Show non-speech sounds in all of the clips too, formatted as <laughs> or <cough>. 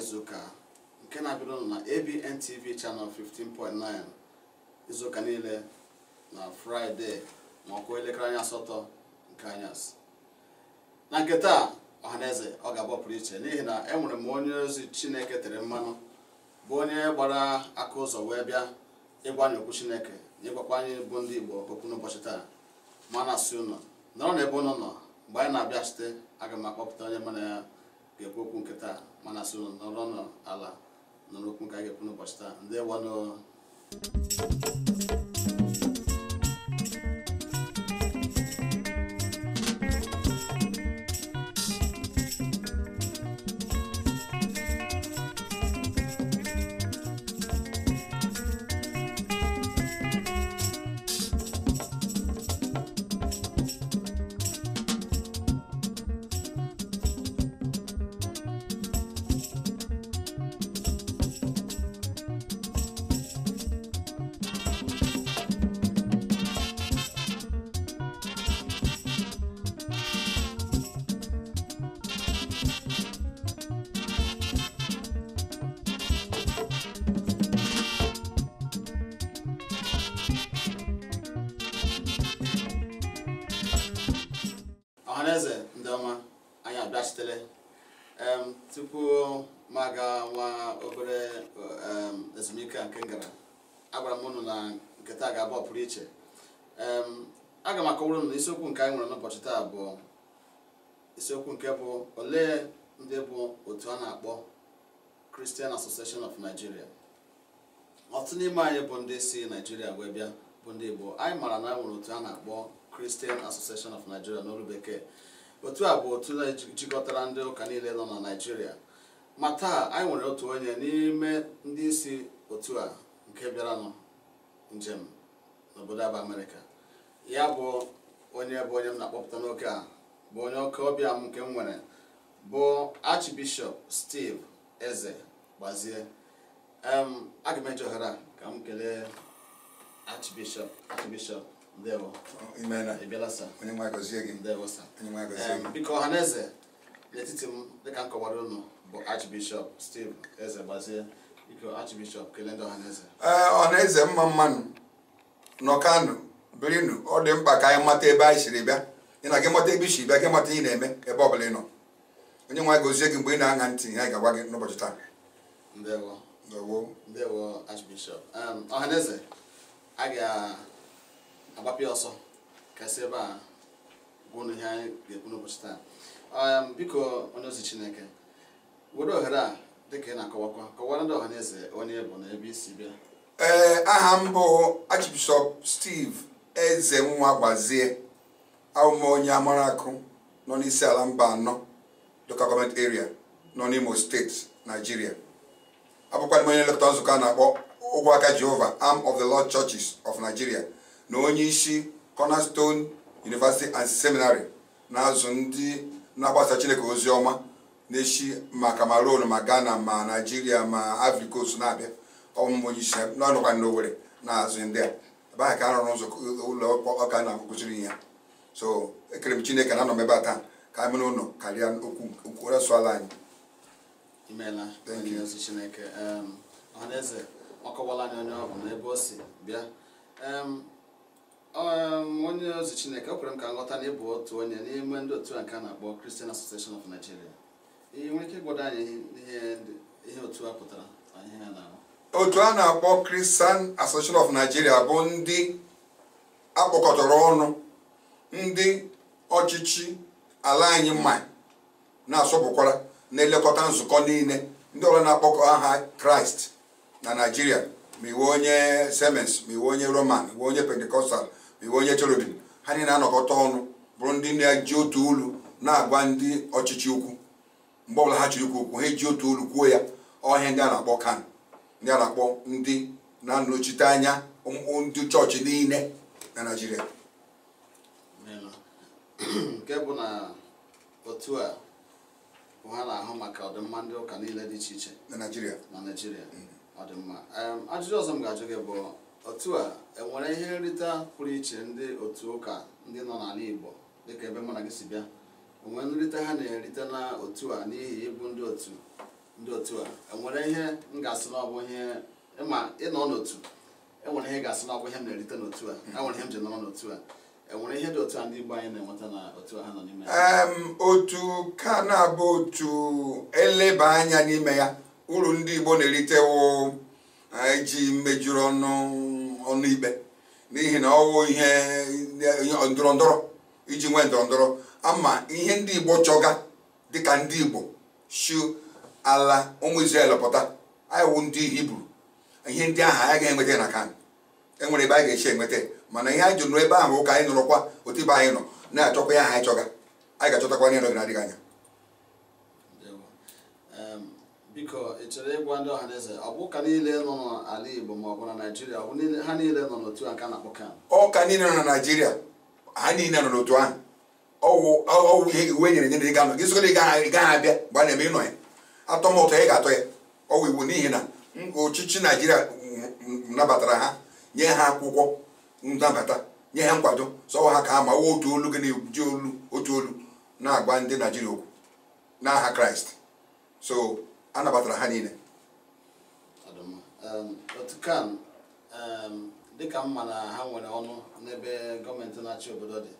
izuụka nke na-abịarụ na ABN TV channel 15.9 izuụka niile na fraịde ma ọ elekere anya asatọ nke anyasị na nke taa ọhaneze ọ ga pụrụ iche n'ihi na enwere m onye ozi chineke tere mmanụ bụ onye gbara aka ụzọ wee bịa ịgwa anyị okwu chineke na ịgwakwa bụ ndị igbo okwu n'ụbọchị taa ma na ụnọ nọrọ n'ebe ụnụ nọ mgbe anyị na-abịa site aga m akpọpụta onye mana ya ga-ekwu okwu nke taa mana so nọrọ nọ ala nọrọ okwu nke a ga-ekwu n'ụbọchị taa ndị wanụ gwara m na nke ga-abụ pụrụ iche aga m akọwara na isiokwu nke anyị nwere n'ụbọchị taa bụ isiokwu nke bụ olee ndị bụ otu a na-akpọ Christian Association of Nigeria ọtụtụ n'ime anyị bụ ndị si Nigeria wee bịa bụ ndị Igbo anyị mara na nwere otu a na-akpọ Christian Association of Nigeria n'olu bekee otu a bụ otu jikọtara ndị ụka niile nọ na Nigeria ma taa anyị nwere otu onye n'ime ndị isi otu a nke bịaranụ njem n'obodo aba amerịka ya bụ onye bụ onye m na-akpọpụta n'oke a bụ onye oke ọbịa m nke m nwere bụ archbishop steve eze gbazie aga m eji ohere ka m kelee archbishop archbishop ndewo ịbịala sa ndewo sa biko ọha na eze n'etiti m dịka m kọwara unu bụ archbishop steve eze gbazie ee ọhaneze eh, mma mmanụ nọ kano birinu ọ dị mkpa ka anyị mata ebe anyị siri bịa ị na gị mata ebe isi bịa gị mata ihe na-eme ebe ọbụla ị nọ onye nwe anyị gozie gị mgbe ị na-aṅa ntị anyị ga-agwa gị n'ụbọchị taa ọhaneze um, a ga-agbapịa ọsọ kasị ebe a gwụnụ ihe anyị ga-ekwu n'ụbọchị taa um, biko onye ozi chineke were ohere a ị na ndị ọhaneze onye bụ na ebe isi bịa ee eh, aha m bụ Archbishop Steve eze nwa gbazie awụma onye amara akụ nọ n'isi ala mba anọ local government area nọ n'Imo steeti Nigeria abụkwa m onye nlekọta nzukọ a na-akpọ ụgwọ aka Jehova Arm of the Lord Churches of Nigeria na onye isi Cornerstone University and Seminary na-azụ ndị na-agbasa Chineke ozi ọma na-echi ma cameroon ma ghana ma naijiria ma afrika afrikos na-abịa ọmụmụ onye isi n'ọnụkwa ndị owere na-azụ ndị a ebe ahụ ka a rụrụ ụzọ ụlọ ọka na akụkụziri ya so ekere m chineke na anọ m ebe a taa ka anyị mere ụlọ karịa okwu resụ ala anyị imeela ozi chineke ọhaneze ọkọwala anyị onye ọ bụ n'ebe o si bịa onye ozi chineke o kwere m ka nghọta na ịbụ otu onye n'ime ndị otu a nke a na-akpọ Christian Association of Nigeria ike anyị ihe otu a pụtara na na a na-akpọ Kristan, Association of Nigeria bụ ndị akpọkọtara ọnụ ndị ọchịchị ala anyị mma na-asọpụkwara na-elekọta nzukọ niile ndị ọrụ na-akpọkọ aha kraịst na naijiria ma iwe onye semens ma iwe onye roman iwe onye pentikọstal ma iwe onye cherubim ha niile na-anọkọta ọnụ bụrụ ndị na-eji otu ulu na-agwa ndị ọchịchị ukwu mgbe ọbụla ha chiri ikwu okwu ha eji otu olu kwuo ya ọhịa ndị a na-akpọ kan ndị a na-akpọ ndị na-anọchite anya ndị chọọchị niile na naijiria nke bụ na otu a bụ ha na-ahụ maka ọdịmma ndị ụka niile dị iche iche na naijiria na naijiria ọdịmma ajụjụ ọzọ m ga-ajụ gị bụ otu a enwere ihe nrita pụrụ iche ndị otu ụka ndị nọ n'ala igbo dịka ebe mụ na gị si bịa onwe nrite ha na-erite na otu a n'ihi ịbụ ndị otu ndị otu a enwere ihe m ga-asị na ihe ịma e ịnọ n'otu enwere ihe ga-asị na ihe m na-erite n'otu a enwere ihe m ji nọrọ n'otu a enwere ihe dị otu a ndị Igbo anyị na-enweta na otu ha nọ n'ime otu ka na-abụ otu eleba anya n'ime ya uru ndị Igbo na-erite wụ iji e mejuru ọnụ ọnụ ikpe n'ihi na ọ wụ ihe ndọrọ ndọrọ iji nwee ndọrọ ndọrọ ama ihe ndị igbo chọga dịka ndị igbo shu ala ụmụ Izrel pụta anyị wụ ndị hibru ihe ndị ahụ anyị ga-enweta na kan enwere ebe anyị ga-esi enweta mana ihe anyị jụrụ ebe ahụ ụka anyị nụrụkwa otu ibe anyị nọ na-achọkwa ya ha anyị chọga anyị ga-achọtakwa ihe n'oge na-adịghị anya biko ị chọrọ ịgwa ndị ọhaneze ọ bụ ụka niile nọ n'ala Igbo ma ọ bụ na Naịjirịa ọ bụ ha niile nọ n'otu aka na-akpọ kan ọka niile nọ na Naịjirịa ha niile nọ n'otu ahụ ọwụ ọgwụ ihe iwu enyere enyere ga anọ gị sogoro gaghị abịa mgbe a na-eme ịnọ ya atọ m ụtọ ị ga-atọ ya Ọgwụ iwu n'ihi na ọchịchị naijiria nabatara ha nye ha akwụkwọ nnabata nye ha nkwado sọwa ha ka ha ma wụ otu olu gị na-eji olu otu olu na-agba ndị naijiria okwu n'aha kraịst so a nabatara ha niile um, um, dịka mma na ha nwere ọnụ n'ebe gọọmenti na-achị obodo dị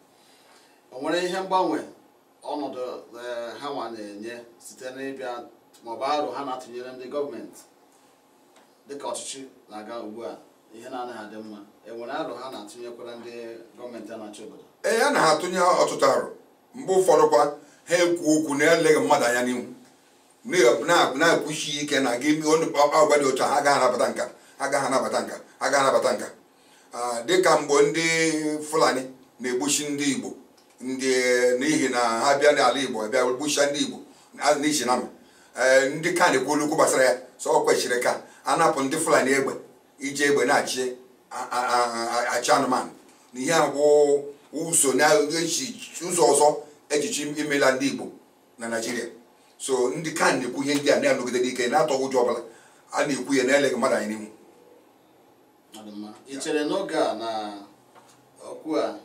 o nwere ihe mgbanwe ọnọdụ eh, ha nwa na-enye site n'ịbịa maọbụ arụ ha na-atụnyere ndị gọọmenti dịka ọchịchị na-aga ugbu a ihe na-anaghị adị mma enwere arụ ha na-atụnyekwara ndị gọọmenti a na-achị obodo ee eh, ya na ha atụnye ọtụtụ arụ mgbe ụfọdụ kwa ha ekwu okwu na-eleghị mmadụ anya n'ihu na-ekwuchi ike na gị agwa dị otu a agaghị anabata nka agaghị anabata nka agaghị anabata nka ah, dịka mgbe ndị fulani na-egbochi ndị igbo n'ihi na ha bịa n'ala igbo bịa gbucha ndị igbo n'ihi na e, ndị ka na-ekwu olukwu gbasara ya so ọ kwechiri ka a napụ ndị fulani egbe iji egbe na-achị achị anụmanụ na ihe agwụ ụzọ ọzọ ejiji imela ndị igbo na naijiria so ndị ka na-ekwu ihe ndị a na-anọgide n'ike na-atọghị ụjọ ọbụla a na-ekwu ya na-eleghị mmadụ anyị n'ihu n'oge a na a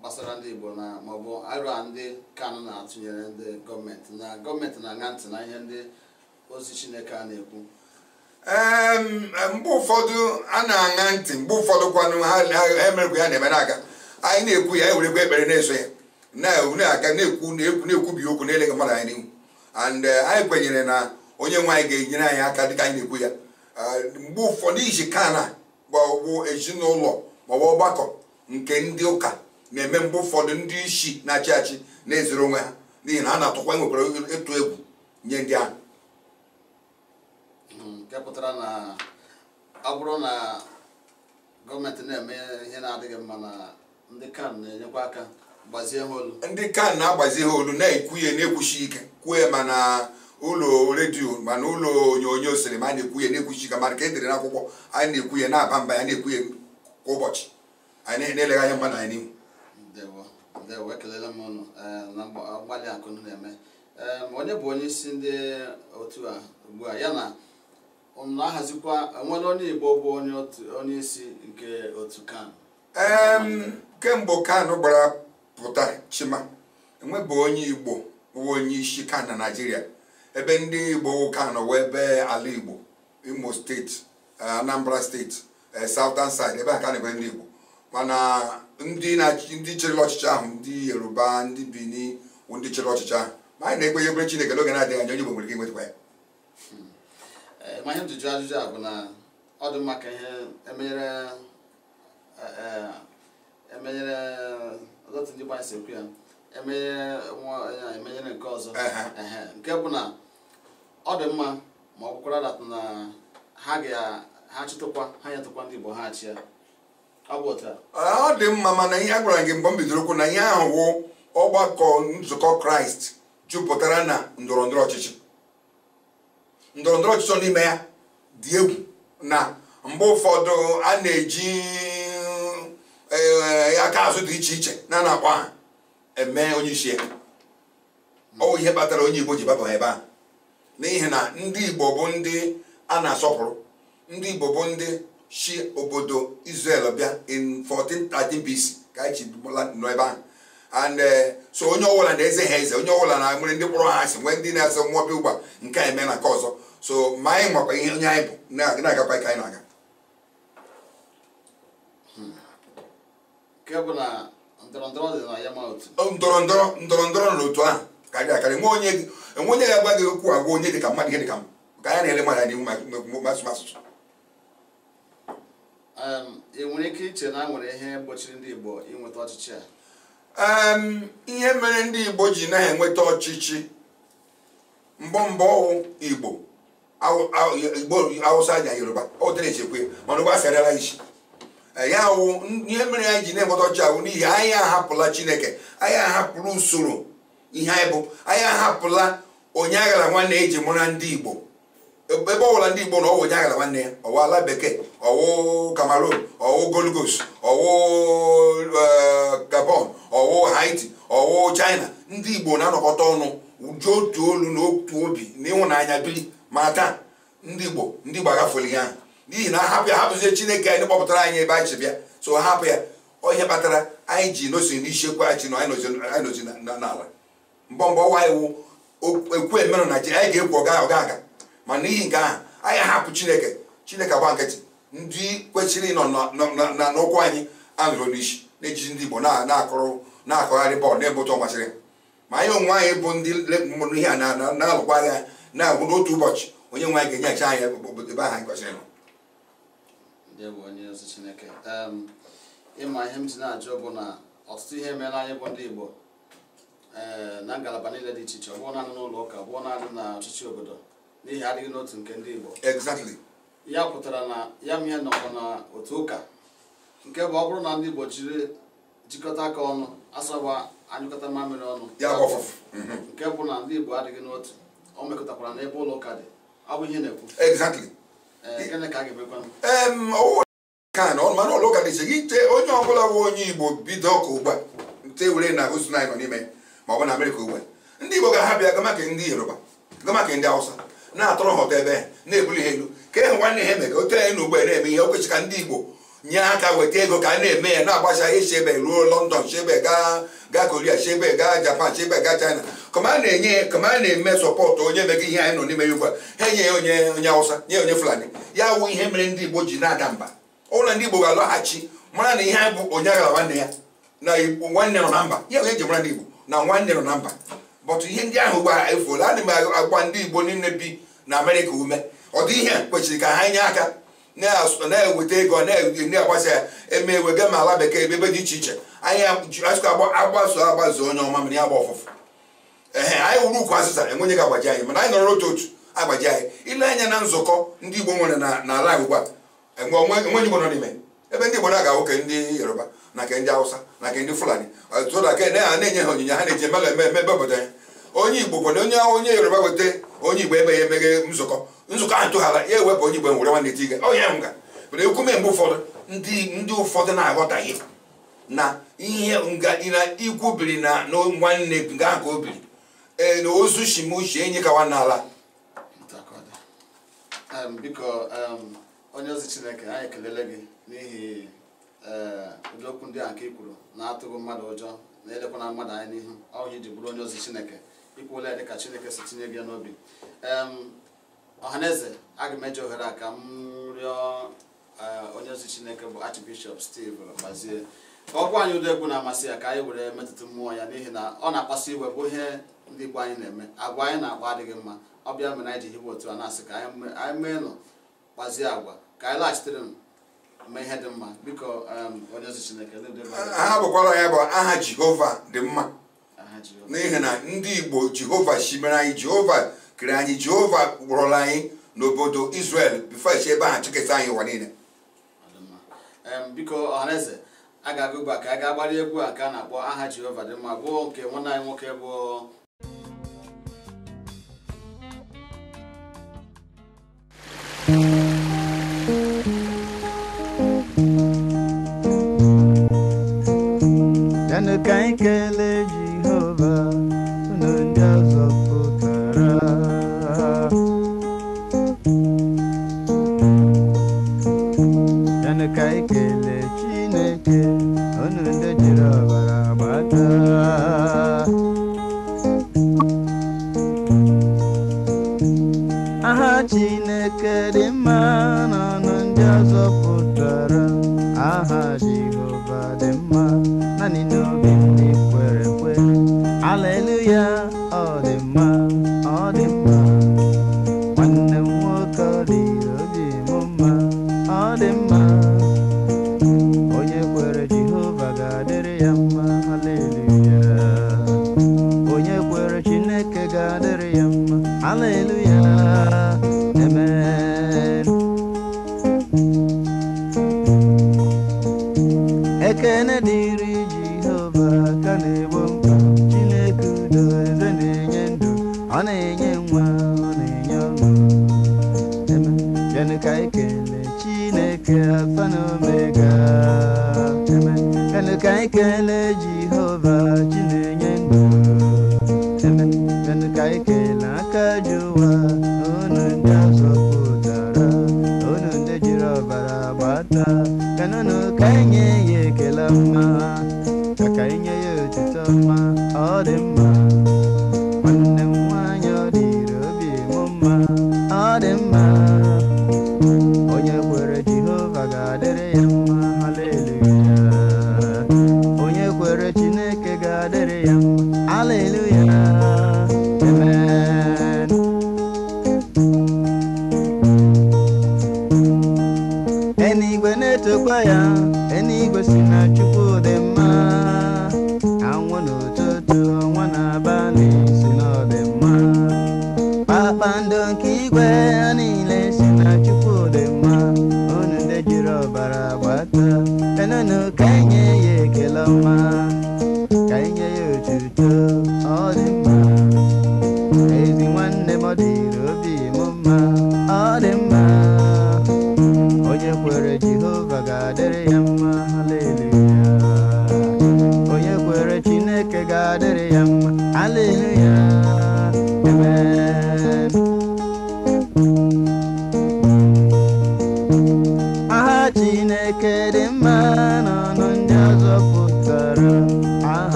gbasara ndị Igbo na maọbụ arọ ndị Kanu na-atụnyere ndị gọọmenti na gọọmenti na-aṅa ntị na ihe ndị ozi Chineke a na-ekwu mgbe ụfọdụ a na-aṅa ntị mgbe ụfọdụ kwanụ ha emerekwa ya na-emere aka anyị na-ekwu ya anyị e werekwa ekpere na-eso ya na-aga na-ekwu na-ekwu na-ekwubi okwu na-eleghị mmadụ anyị n'ihu and eh, anyị kwenyere na onye nwe anyị ga-enyere anyị aka dịka anyị na-ekwu ya mgbe ụfọdụ iji kana bụ ezinụlọ maọbụ ọgbakọ nke ndị ụka na-eme mgbe ụfọdụ ndị isi na-achị achị na-ezere onwe ha n'ihi na ha na-atụkwa nwekwara ịtụ egwu nye ndị ahụ hmm, nke pụtara na ọ bụrụ na gọọmenti na-eme ihe na-adịghị mma na ndị kan na-enyekwa aka gbazie ha olu ndị kan na-agbazi ha olu na-ekwu ya na-ekwuchi ike kwuo ya ma ụlọ redio mana ụlọ onyonyo sinima a na-ekwu ya na-ekwuchi ike mana ka edere n'akwụkwọ anyị na-ekwu ya na-aba mba ya na-ekwu ya kwa ụbọchị anyị na-eleghị anya na anyị n'ihu ndewo ekelela m ọnụ eh, na mgbalị akụ unu na-eme eh, onye bụ onye isi ndị otu a ugbu a ya na na-ahazikwa nwere onye igbo bụ onye isi nke otu kan kemgbe kan gbara pụta chima enwebeghị onye igbo bụ onye isi kan na naijiria ebe ndị igbo kan wee ebe ala igbo imo steeti eh, anambra steeti southern side ebe a ka na-ebe ndị igbo mana ndị ndị chere ọchịchị ahụ ndị yoruba ndị bini ndị chere ọchịchị ahụ ma anyị na-ekpe ya obere chineke n'oge na-adịghị anya onye Igbo nwere ike inwetakwa ya hmm. eh, ma ihe njụjụ ajụjụ a bụ na ọ dị mma ka ihe emenyere emenyere eh, eh, e ọtụtụ ndị gbanyesi ekwu ya emenyere nwa ya emenyere nke ọzọ nke bụ na ọ dị mma ma ọ bụkwara datụ na ha ga ha ha nyetụkwa ndị Igbo ha achị ya ọ dị mma mana ihe a gwara gị mgbe m bidoro okwu na ihe ahụ wụ ọgbakọ nzukọ kraịst jupụtara na ndọrọ ndọrọ ọchịchị ndọrọ ndọrọ ọchịchị n'ime ya dị egwu na mgbe ụfọdụ a na-eji aka azụ dị iche iche na na-akwa ha eme onye isi ya ọ bụ ihe kpatara onye igbo ji gbaba ebe a. n'ihi na ndị igbo bụ ndị a na-asọpụrụ ndị igbo bụ ndị si obodo Israel bịa in 1413 BC ka anyị chibụla nọ ebe ahụ and so onye ọbụla na-eze ha eze onye ọbụla na nwere ndị kpọrọ ha asị nwee ndị na-eze nwa bịa ụgba nke a eme na nke ọzọ so ma anyị makwa ihe onye anyị bụ na-agakwa ka anyị na-aga ndọrọ ndọrọ ndọrọ ndọrọ na otu ahụ karịrị akarị enwe onye ga-agba gị okwu agwa onye dị ka mmadụ ihe dị ka m ka anyị na-ele mmadụ n'ihu masụmasụ Um, e nwere ike iche na nwere ihe gbochiri ndị Igbo inweta ọchịchị a um, ihe mere ndị Igbo ji na-enweta ọchịchị mbọ mbọ Igbo Igbo Awụsa na Yoruba o dere chekwe mana ụgba asarala isi eh, ya wụ ihe mere anyị ji na-enweta ọchịchị ahụ n'ihi anyị ahapụla Chineke anyị ahapụla usoro ihe anyị bụ anyị ahapụla onye aghara nwanne eji mụra ndị Igbo ebe ọbụla ndị Igbo na ọwụ Onyeaghala nwanne ya ọwụ ala bekee ọwụ Cameroon ọwụ Golgos ọwụ eh, Gabon ọwụ Haiti ọwụ China ndị Igbo na-anọkọta ọnụ uju otu olu na otu obi na ịhụnanya biri ma taa ndị Igbo ndị Igbo agafuola ihe ahụ n'ihi na hapụ ya hapụzie Chineke anyị kpọpụtara anyị ebe anyị bịa so hapụ ya onye kpatara anyị ji nosi n'isiekwu anyị na anyị nozi n'ala mgbe mgbe ọwa iwu ekwu emerụ na ji anyị ga-ekwu ọga aga ma n'ihi nke ahụ anyị ahapụ chineke chineke agba nkịtị ndị kwechiri ịnọ n'ụkwụ anyị anụrụ n'isi na-ejiji ndị igbo na akọrọ na-akụgharị bọọlụ na-ebe ụtọ masịrị ma anyị onwe anyị bụ ndị mụrụ ihe a na-alụkwa agha na-agwụ n'otu ụbọchị onye nwe anyị ga-enyecha anyị obodo ebe ahụ anyị kwesịrị nọ ịma ihe m ji na-ajụ bụ na ọtụtụ ihe meela anyị bụ ndị igbo eh, na ngalaba niile dị iche iche ọ bụrụ naanị n'ụlọ ụka ọ bụ naanị na ọchịchị obodo n'ihi adịghị n'otu nke ndị Igbo exactly ya pụtara na ya mịa nọkwa na otu ụka nke bụ ọ bụrụ na ndị Igbo jiri jikọta aka ọnụ asọba anyụkọta mamịrị ọnụ mhm. nke bụ na ndị Igbo adịghị n'otu o mekọtakwara n'ebe ụlọ ụka dị ọ bụ ihe na-ekwu exactly eh, gịnị ka a ga-emekwa ka na ụlọ ụka dị gị ite onye ọbụla bụ onye Igbo bido ka ugbu nte were na hosụ nọ n'ime maọbụ na Amerịka ugbu ndị Igbo ga-aha bịa gamaka ndị Yoruba gamaka ndị Hausa na-atụrụ ha ụtọ ebe na-ebuli ha elu ka e nwanne ha eme ka otu anyị na ugbe na-eme ihe okwechi ka ndị Igbo nye aka weta ego ka a na-eme ya na-agbacha ihe chebe ruo lọndọn chebe gaa koria chebe gaa Japan chebe gaa China kama a na-enye kama a na-eme sọpọtụ onye mega ihe anyị nọ n'ime ya ugbu a ha enye ya onye onye awụsa nye onye Fulani ya wụ ihe mere ndị Igbo ji na-ada mba ụlọ ndị Igbo ga-alọghachi mara na ihe anyị bụ onye agha nwanne ya na nwanne nọ na mba ya onye ji mara ndị Igbo na nwanne nọ na mba bọtụ ihe ndị ahụ gbara efuola adị m agwa ndị igbo niile bi na amerịka ume ọ dị ihe kwesịrị ka ha nye aka na-eweta ego na-agbasa ya eme ewega ma ala bekee ebe dị iche iche anyị asụkọ agbaso agbazụ onye ọma mere ya gba ọfụfụ ehe anyị wuru ukwu azịza enwenye ga agbaji anyị mana anyị nọrọ otu otu agbaji anyị ile anya na nzukọ ndị igbo nwere na ala ugbu a enweghị igbo nọ n'ime ebe ndị igbo na-aga nwoke ndị yoruba na nke ndị awụsa na nke ndị fulani ọtụtụ na nke ha na-enye ha onyinye ha na-eji eme eme eme ebe obodo ya onye igbo kwado onye onye yoruba weta onye igbo emeghe emeghe nzukọ nzukọ ahụ tụghara ya ewepụ onye igbo e nwere nwanne ti ige onye nga mana ekwume mgbe ụfọdụ ndị ụfọdụ na-aghọtaghị na ihe ikwu biri na nwanne nga ka o biri ee na ozu shimushi enyi kawa n'ala biko onye ozi chineke anyị ekelele gị n'ihi ee eh, ụdị ndị a nke i kwuru na-atụghị mmadụ ụjọ na-elekwana mmadụ anya n'ihu ọhụrụ iji bụrụ onye ozi chineke ikwuola ya dịka chineke si tinye gị ya n'obi ọhaneze aga m eji ohere a ka m rịọ eh, onye ozi chineke bụ archbishop steve gbazie ka ọ gwa anyị ụdị egwu na-amasị ya ka anyị were metụta mmụọ ya n'ihi na ọ na-akpasu iwe bụ ihe ndị igbo anyị na-eme agwa anyị na-akpa adịghị mma ọ bịa mere anyị ji hiwe otu a na-asị ka anyị mee nọ kpazie agwa ka anyị laghachitere Um, ha bụkwara ya bụ aha jehova dị mma n'ihi na ndị igbo jehova mere anyị jehova kere anyị jehova gwụrụla anyị n'obodo israel bifesh ebe aha chịkịta anyị ụwa niile um, biko ọhaneze a ga-agụgba ka a ga-agbara egwu a ka a na-akpọ aha jehova dị mma bụ nke nwanne anyị nwoke bụ Michael n'ụba you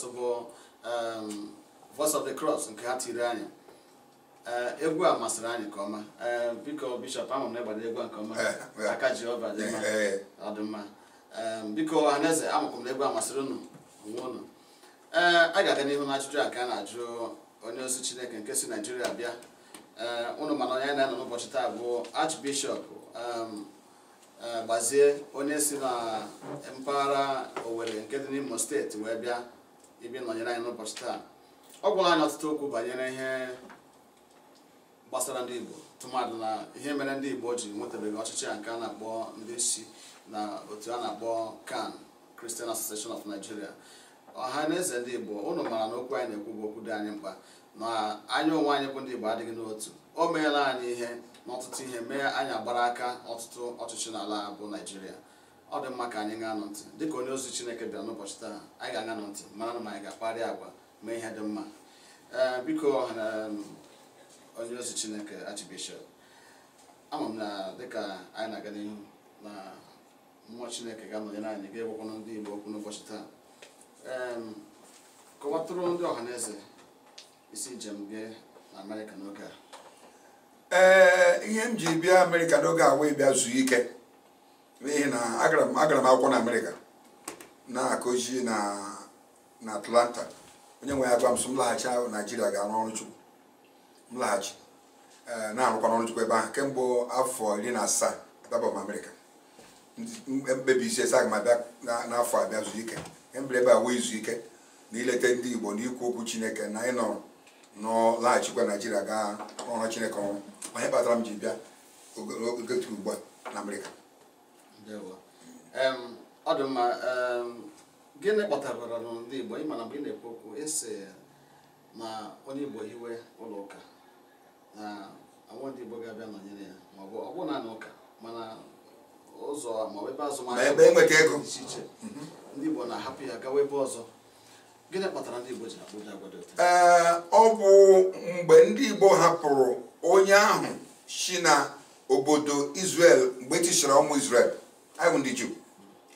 Jesus um, bụ voice of the cross nke ha tiri anyị uh, egwu a masịrị anyị nke ọma uh, biko bishọp na a nke ọma <laughs> aka Jehova dị um, biko m na egwu a masịrị unu onwe unu ee uh, a ga-aga n'ihu na ajụjụ a ka a na-ajụ onye ozi chineke nke naijiria bịa mana onye na-anọ n'ụbọchị taa bụ archbishop um, gbazie onye si na mpaghara owere nke dị n'Imo steeti wee bịa ebe nọnyere anyị n'ụbọchị taa ọ gwara anyị ọtụtụ okwu banyere ihe gbasara ndị Igbo tụmadụ na ihe mere ndị Igbo ji nwetabeghị ọchịchị a nke a na-akpọ ndị isi na otu a na-akpọ CAN Christian Association of Nigeria ọha na eze ndị Igbo ụnụ mara na okwu anyị na-ekwu bụ okwu dị anyị mkpa na anya onwe anyị bụ ndị Igbo adịghị n'otu o meela anyị ihe n'ọtụtụ ihe mee anyị agbara aka ọtụtụ ọchịchị n'ala bụ Naijiria. ọ dị mma ka anyị ga-anọ ntị dịka onye ozi Chineke bịa n'ụbọchị taa anyị ga-aga nọ ntị mara na ma anyị ga-akparị agwa mee ihe dị mma biko onye ozi Chineke Archbishop ama m na dịka anyị na-aga n'ihu na mmụọ Chineke ga-anọnyere anyị ga-egwekwana ndị Igbo okwu n'ụbọchị taa kọwatụrụ ndị ọha eze isi njem gị na Amerịka n'oge a ee ihe m ji bịa Amerịka n'oge a wee bịa zuo ike n'ihi na agara m akwụkwọ na amerịka na-akụzi na atlanta onye nwe ya gwa m sị m laghachi naijiria ga-arụ ọrụ chukwu m laghachi e, na-arụkwa n'ọrụ chukwu ebe ahụ kemgbe afọ iri na asaa m amerịka mkpebi isi esa aga m abịa n'afọ abịa zu ike kemgbe ebe a wee izu ike na ileta ndị igbo na ikwu okwu chineke na ịnọ nọ laghachikwa naijiria gaa ọrụ chineke ọrụ onye kpatara m ji bịa ogotu ugbu a na amerịka ọ dị mma gịnị kpọtara ndị Igbo ị mana mgbe ị na-ekwu okwu ịsị e na onye Igbo hiwe ụlọ ụka na nwa ndị Igbo ga-abịa nọnyere ya ma ọ bụ ọ bụ naanị ụka mana ụzọ ma ọ bụ ebe azụmahịa e iche ndị Igbo na-ahapụ ya gawa ebe ọzọ gịnị kpatara ndị Igbo ji akpụja agwa dị otu ọ bụ mgbe ndị Igbo hapụrụ onye ahụ si na obodo izrel mgbe e tichara ụmụ izrel. I wụ ndị Jew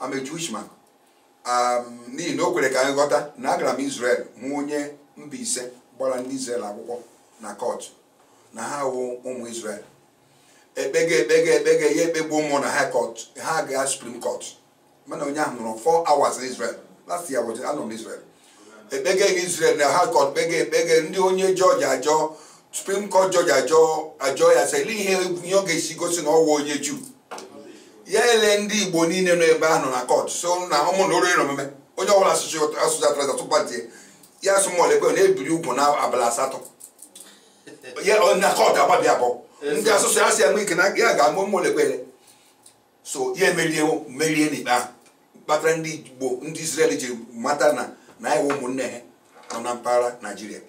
I'm a Jewish man um, n'ihi na o kwere ka anyị ghọta na agara m Israel hụ onye mba ise gbara ndị Israel akwụkwọ na kọtụ na ha wụ ụmụ Israel ekpege ekpege ekpega ya ekpegbu ụmụ na ha kọtụ ha gaa Supreme Court mana onye ahụ nọrọ four hours na Israel last year anọ m Israel ekpega Israel na ha kọtụ kpega ekpege ndị onye Georgia ajọ Supreme Court Georgia ajọ ajọ ya sị ihe ihe ọ ga-esi gosi na ọ wụ onye Jew ya ele ndị igbo niile nọ ebe ahụ na kọt so na ụmụ na orire omume onye ọbụla asụsụ atrasa tụpatie ya asụmọlekwe na-ebiri ugwu na abalị asatọ na kọt agbabi abụọ ndị asụsụ ya si ya ike na ya ga-amụ ụmụolekwele so ya emerie merie n'ikpe ahụ kpatara ndị igbo ndị israel ji mata na na anyị ụmụnne ha nọ na mpaghara naijiria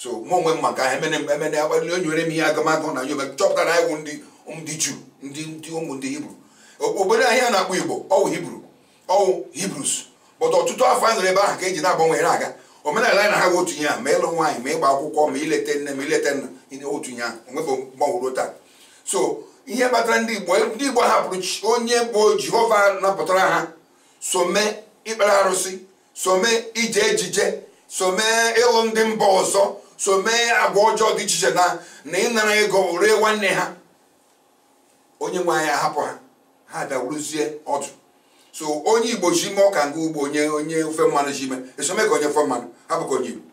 so mụ onwe m maka ha emene emene agbalị onye nwere m ihe agamagụ na nyobe chọpụtara anyị wụ ndị juu ndị ụmụ ndị hibru obodo ahịa na-akpọ igbo ọwụ hibru ọwụ hibrus bọtụ ọtụtụ afọ anyị nọrọ ebe ahụ ka eji na-agbanwe aga omenala anyị na ha bụ otu ihe ahụ ma ịlụ nwaanyị ma ịgba akwụkwọ ma ileta nne ma ileta nna otu ihe ahụ onwebụ mgbanworo taa so ihe kpatara ndị igbo ndị igbo hapụrụ onye bụ jehova napụtara ha so mee ikpere arụsị so mee ije ejije so mee ịlụ ndị mba ọzọ so mee agwa ọjọọ dị iche iche na na ịnara ego ree nwanne ha onye nwe anyị ahapụ ha ha bịa wuruzie ọdụ so onye igbo ji ime ọka nga ugbo onye onye ofe mmanụ ji ime esome ka onye ofe mmanụ hapụ ka onye igbo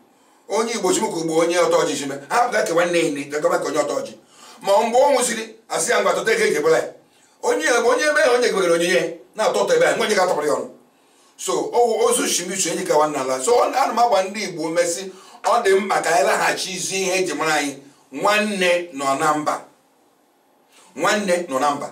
onye igbo ji m ka ugbo onye ọtọ ọjị ji ime hapụ ka nwanne ya ine gagaba ka onye ọtọ ọjị ma mgbe ọ nwụsịrị asị ya ngwa tụta ego e ekebela ya onye onye ebe ya onye gebegara onyinye ya na-atọ ụtọ ebe ya nwa onye ga-atọpụrụ ya ọnụ so owu ozu shimichu enyi ka nwanna ala so ana m agba ndị igbo mesị ọ dị mkpa ka anyị laghachi ihe eji mara anyị nwanne nọ na mba nwanne nọ na mba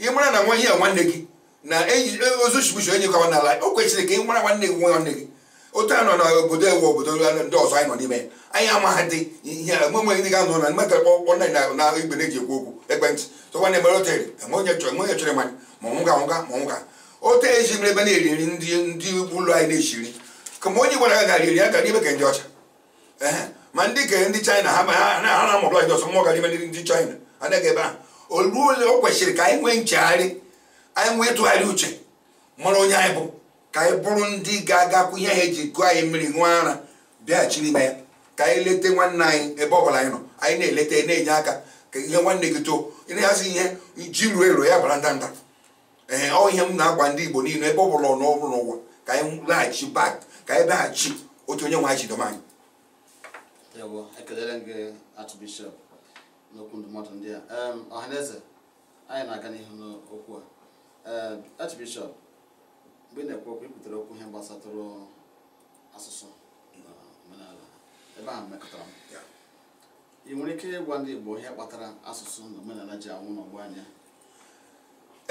ị mara na nwa ihe a nwanne gị na e, ozuchibuchi onye kawa n'ala o kwesịrị ka ị mara nwanne gị nwa nwanne gị otu a nọ na obodo ewu obodo ndị ọzọ anyị nọ n'ime ya anyị amaghị dị ihe enweghị ndị ga-anọ na mmetara kpọkpọ na na igbe na-eji ekwu okwu ekwentị tụkwa na otere enwe onye chọrọ ma ọnwụga ma ọnwụga otu eji mere ebe na-eri nri ndị ndị ụlọ anyị na-eshiri ka ma onye gwara ya gara iri ke ndị China ha na-amụrụ anyị ọsọ mmụọ China anaghị ebe ahụ olu ole o kwesịrị ka anyị nwee nchegharị anyị nwee tụgharị uche mara onye anyị bụ ka anyị bụrụ ndị ga-agakwu ihe anyị eji gụọ anyị mmiri ṅụọ ara bịaghachi n'ime ya ka anyị lete nwanne anyị ebe ọbụla anyị nọ anyị na-eleta na-enye aka ka ihe nwanne gị too ịna ihe ji ruo ero ya bara ndanda ee ọ ihe m na-agwa ndị Igbo niile ebe ọ bụla ọ n'ọrụ n'ụwa ka anyị laghachi bak ka anyị baghachi otu onye nwe anyị jidom anyị n'okwu ndụmọdụ ndị a ọhaneze anyị na-aga n'ihu n'okwu a archbishọp mgbe ị na-ekwu okwu ikwutere okwu ihe gbasatụrụ asụsụ na omenala ebe ahụ mekọtara m ị nwere ike ịgwa ndị Igbo ihe kpatara asụsụ na omenala ji anwụ n'ọgbọ anya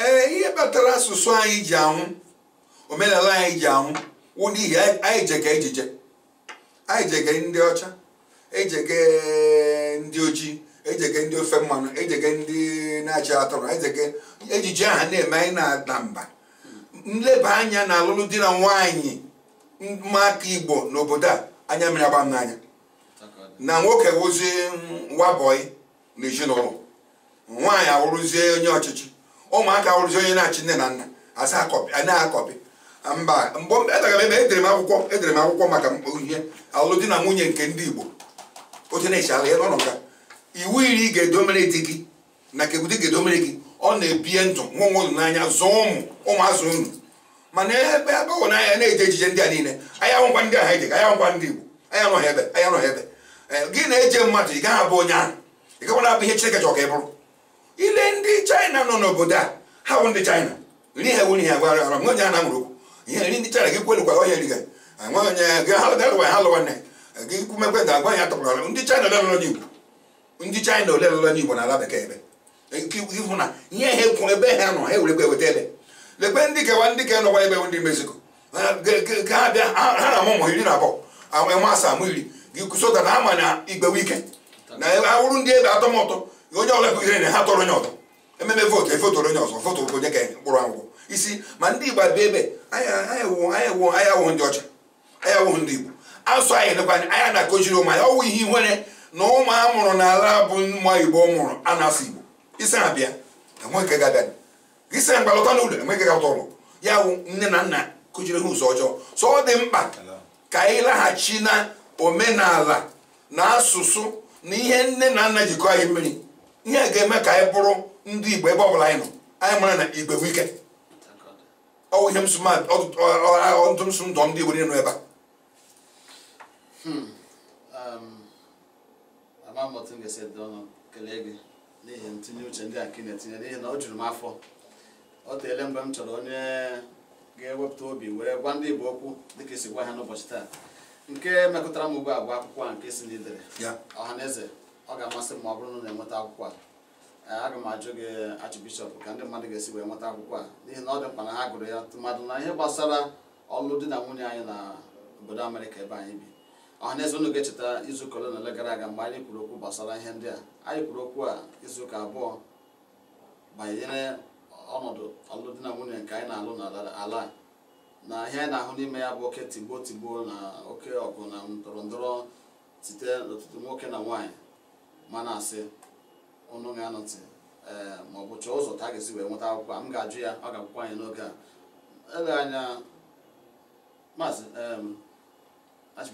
ee eh, ihe kpatara asụsụ anyị ji anwụ omenala anyị ji anwụ wụ n'ihi anyị jega ejije anyị jege ndị ọcha ejege ndị ojii ejege ndị ofe mmanụ ejege ndị na-achị atụrụ ejege ejije aha na-eme anyị na-ada mba nleba anya na alụlụ di na nwaanyị maka igbo n'obodo a anya mere agba m n'anya na nwoke wụzie wabọị na ezinụlọ nwaanyị awụrụzie onye ọchịchị ụmụaka awụrụzie onye na-achị nne na nna na-akọpị mba mgbe edara m e ebe edere m akwụkwọ edere m akwụkwọ maka ihe alụlụ di na nwunye nke ndị igbo oche na echi ala ya n'ọnọdụ iwu iri ga-edomere di gị na nke di ga-edomere gị ọ na-ebie ndụ nwa nwa unu n'anya zụọ ụmụ ụmụazụ unu mana ebe ebe ọ n'anya na-eje ejije ndị a niile anya nwụkwa ndị aha ejega anya nwụkwa ndị Igbo anya nọghị ebe anya ebe gị na-eje mmadụ ị gaghị abụ onye ahụ abụ ihe Chineke chọrọ ile ndị China nọ n'obodo a ha bụ ndị China nri ha nwere agwara ara nwe onye na ndị gị ndị China ole emewe n'Igbo na ala bekee ebe ịhụ na ihe ha kwụrụ ebe ha nọ ha ewerekwa eweta ebe lekwe ndị kewa ndị ke nọkwa ebe ndị Mexico ha bịa ha na-amụ ụmụ iri na abụọ amasị amụ iri gị kụsota na ama na igbewe ike na awụrụ ndị ebe atọ ụtọ onye ọbụla bụ ihe na ha tọrọ onye ọtọ ememe vootu efotoro onye ọzọ foto onye ka mkpụrụ akwụkwọ isi ma ndị Igbo abịa ebe anyị awụghị ndị ọcha anyị awụghị ndị Igbo asụ anyị lekwa anya na-akụziri ụmụ anyị ọwụ ihe ihere na ụmụ a mụrụ n'ala bụ nwa igbo mụrụ a na-asụ igbo isi abịa isi na mgbalọta n'ụlọ enweghị ga ụlọ ya bụ nne na nna kụjiri ha ụzọ ọjọọ so ọ dị mkpa ka anyị laghachi na omenala na asụsụ na ihe nne na nna jikọ anyị mmiri ihe ga-eme ka anyị bụrụ ndị igbo ebe ọbụla anyị nọ anyị mara na igbe wike ọwụ ihe ntụmsụ ndụ ndị igbo niile nọ ebe a kwa mbọtụ m ga-esi dị ọnụ kelee gị n'ihi ntinye uche ndị a nke na-etinye n'ihi na ọ jụrụ m afọ ọ teele mgbe m chọrọ onye ga-ewepụta obi were gwa ndị Igbo okwu dịka esi gwa ha n'ụbọchị taa nke mekọtara m ugbu a akwụkwọ a nke si na idere ọha na eze ọ ga-amasị m ma ọ bụrụ na na-enweta akwụkwọ a e, aga m ajụ gị achịbishọp ka ndị mmadụ ga-esi wee nweta akwụkwọ a n'ihi na ọ dị mkpa na ha gụrụ ya tụmadụ na ihe gbasara ọlụ di na nwunye anyị na obodo Amerịka ebe anyị bi ọhaneze unu ga-echeta izuụka ole na ole gara aga mgbe anyị kwuru okwu gbasara ihe ndị a anyị kwuru okwu a izuụka abụọ banyere ọnọdụ ọlụdị na nwunye nke anyị na-alụ n'ala na ihe anyị na-ahụ n'ime ya bụ oke tigbuo tigbuo na oke ọgụ na ndọrọndọrọ site n'ọtụtụ nwoke na nwaanyị mana asị ọnụ ga-anọtị ee eh, ma ọ bụ chọọ ụzọ ta ga-esi wee nweta akwụkwọ m ga-ajụ ya ọ ga-akwụkwọ anyị n'oge a ele anya maazị e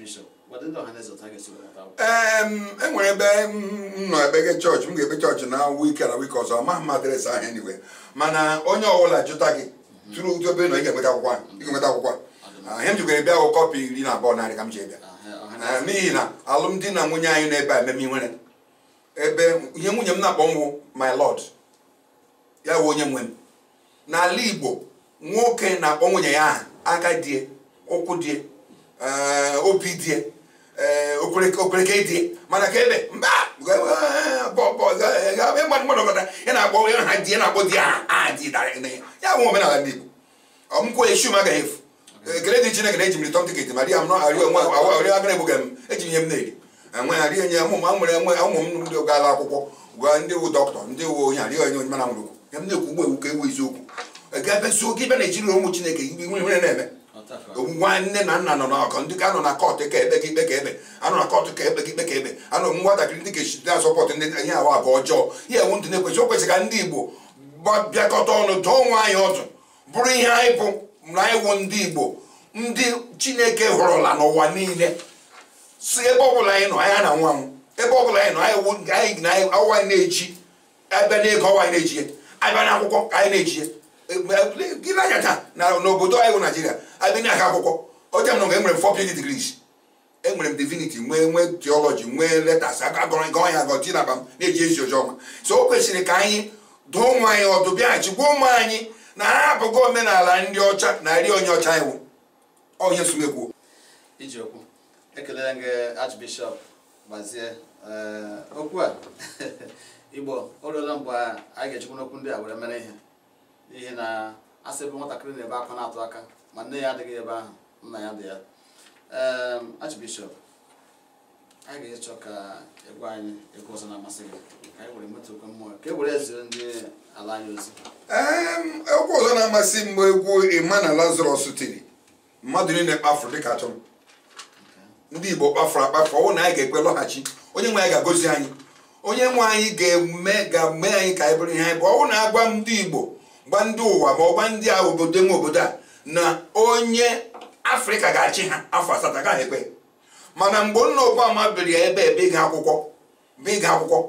nwere ebe m nọ ebe gị chọọchị m ga-ebe chọọchị na wike na wike ọzọ amaghị m adresị ahụ anyway mana onye ọbụla jụta gị tụrụ ụdị obere nọ ị ga-enweta akwụkwọ ị ga-enweta akwụkwọ ihe m jikwere bịa ahụ kọpị iri na abụọ narị ka m ji bịa n'ihi na alụmdi na nwunye anyị n'ebe a ememe nwere ebe ihe nwunye m na-akpọ nwụ my lord ya wụ onye nwe m n'ala Igbo nwoke na-akpọ nwunye ya aha aka die ụkwụ die obi dị okwerekwe dị mana ka ebe mba ị na-agba ya ha di na-akpọ di ya ya bụ omenala ndị Igbo ọmụkwụ echu m agaghị efu ekele eh, dị Chineke na-eji miri tọm tiketi ma di ya m nọarịọ egbughị m eji ihe m na-eri enwe ha rie nye mụ nwere nwe ụmụ m ndị gaala akwụkwọ gwa ndị wu dọkịta ndị wu onye arị onye onye mana nwere okwu ya m na-ekwu ewu ka ewu eziokwu ebe eh, ụmụ Chineke nwere na nwanne na nna nọ n'ọkọ ndị ka nọ na kọt ka ebe ka ikpe ka ebe anọ na kọt ka ebe ka ikpe ka ebe anọ nwatakịrị ndị ga-echite asọpọtụ ndị ihe ahụ abụ ọjọọ ihe ewu ndị na-ekwesị o kwesịrị ka ndị Igbo bịakọta ọnụ dụọ onwe anyị ọdụ bụrụ ihe anyị bụ na wụ ndị Igbo ndị Chineke hụrụla n'ụwa niile si ebe ọbụla anyị nọ anya na nwa m ebe ọbụla anyị nọ anyị na-echi abịa na ọwa anyị na-eji abịa n'akwụkwọ anyị na-eji na taa na n'obodo anyị bụ naijiria abịa na aka akwụkwọ oche m nọ nga enwere m four PhD degrees enwere m diviniti nwee nwee theology nwee letters agọrọ gọ ya agọ tinaba m na-eji ezi ozi ọma so o kwesịrị ka anyị dụọ ụmụ anyị ọdụ bịaghachi gwa ụmụ anyị na ha abụghị omenala ndị ọcha na nri onye ọcha iwu onye sumekwuo ijiokwu ekelela archbishop gbazie okwu a igbo o ruola mgbe a ga-echekwa n'okwu ndị a were mere ihe n'ihi na asị bụ nwatakịrị na-ebe akwa na-atụ aka ma nne ya adịghị ebe ahụ nna ya dị ya Archbishop a ga-echọ ka egwu anyị egwu ọzọ na-amasị gị ka anyị were metụ okwe mmụọ ka e were ezire ndị ala anyị ozi egwu ọzọ na-amasị m egwu ịma na Lazarus tiri mmadụ niile kpafuru dịka atụm ndị Igbo kpafuru akpafu ọwụ na anyị ga-ekwe lọghachi onye nwe anyị ga-agozi anyị onye nwe anyị ga-eme ga-eme anyị ka anyị bụrụ ihe anyị bụ ọwụ na agwa m ndị Igbo gba ndị ụwa ma ọgba ndị a obodo nwe obodo a na onye afrịka ga-achị ha afọ asatọ gaghị ekpe mana mgbe nna obama biri ya ebe ebe ịga akwụkwọ bụ ịga akwụkwọ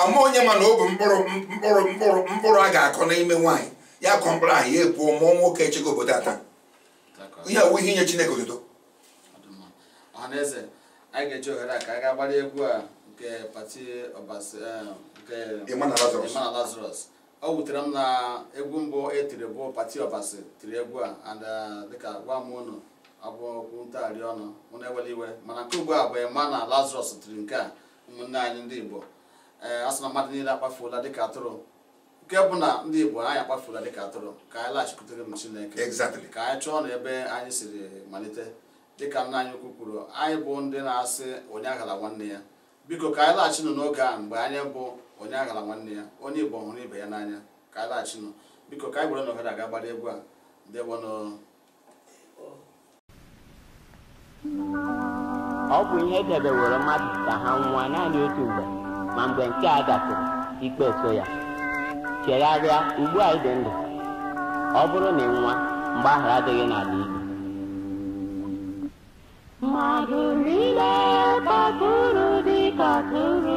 ama onye mana ọ bụ mkpụrụ mkpụrụ mkpụrụ mkpụrụ a ga-akọ n'ime nwaanyị ya kọ mkpụrụ ahụ ya epuo mụọ nwoke echego obodo ata ihe awụ ihe inye chineke obodo ọhaneze ga ohere a ka a gaa gbara egwu a nke pati eh, nke o wutere m na egwu mbụ etiri bụ pati ọbasi tiri egwu a and uh, dịka gwa m ụnụ abụọkwu ntagharị ọnụ mụ na ewele iwe mana nke ugbu a bụ ema na lazarus tiri nke a ụmụnne anyị ndị igbo ee eh, niile na mmadụ niile akpafuola dịka atụrụ nke bụ na ndị igbo anyị akpafuola dịka atụrụ ka anyị laghachikwutere m chineke ka anyị chọọ na ebe anyị siri malite dịka nna anyị ukwu kwuru anyị bụ ndị na-asị onye aghala nwanne ya biko ka anyị laghachinụ n'oge a mgbe anyị bụ onye aghara nwanne ya onye igbo hụrụ ibe ya n'anya ka a laghachinụ biko ka anyị gwere na ohere aga gbara egwu a ndewonụ ọ bụ ihe edebeworo mmadụ ka ha nwa naanị otu mgbe ma mgbe nke a gafere ikpe so ya chegharịa ugbu a dị ndụ ọ bụrụ na ị nwa mgbaghara adịghị n'ala adịghị mmadụ niile kpọtụrụ dị tụrụ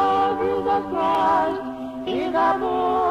God, is a boy.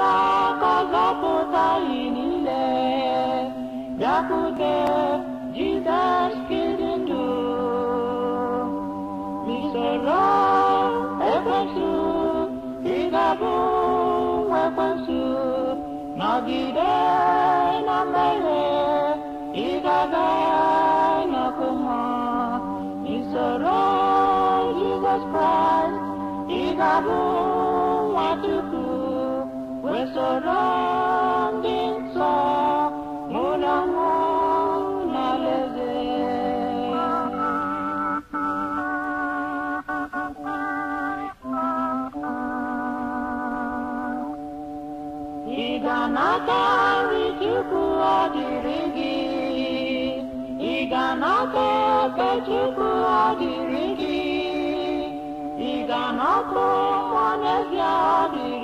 alákazatot a inile, Jakude, Jesus kirindu, Misero, Iganata Chukwu adịrị gị Iganata ebe Chukwu adịrị gị Iganata ụmụ n'ezie adịrị